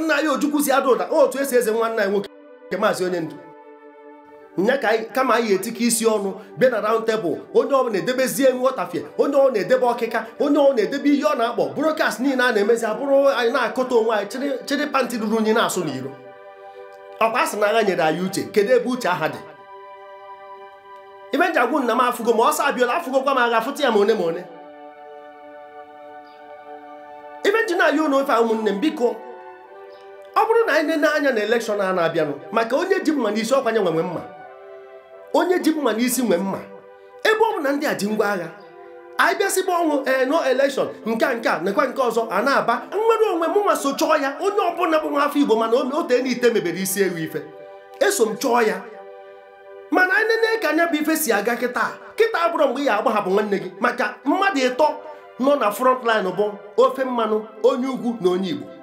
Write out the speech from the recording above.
nwanne anyị ojukwu si ada ụda otu esi eze nwanne anyị nwoke nke maazị onye ndu nya ka kama anyị etike isi ọnụ bịa na raund tebụl onye ọ na-edebezie nghọtafie onye ọ na-edebe ọkịka onye ọ na-edebe ihe ọ na-akpọ broadcast niile a na-emezi abụrụ anyị na akụta onwe anyị chịrị pantị ruru unyi na-asụ n'iro ọkwa asị na agha nyere anyị uche kedu ebe uche aha dị ibe agwụ nna m afụgo ma ọsọ abịala afụgokwa m agha fụta ya ma one ma one ibe na-ayị ụlọ ofe ụmụnne m biko ọ bụrụ na anyị na anya na elekshọn a na-abịanụ maka onye ji mma n'isi ọkwanye nwe mma onye ji mma n'isi nwe mma ebe ọ bụ na ndị a ji ngwa agha anyị bịasịba ọnwụ ee eh, no elekshọn nke a nke a nke ọzọ a na-aba nwere onwe mụnwa so chọọ ya onye ọbụla bụ nwa afọ igbo mana ote na ite mebere isi ewu ife eso m chọọ ya mana anyị nene ka anya bụ ife si aga kịta kịta abụrụ mgbe ị ga-agbahapụ nwanne gị maka mmadụ ịtọ nọ na front bụ ofe mmanụ onye ugwu na onye igbo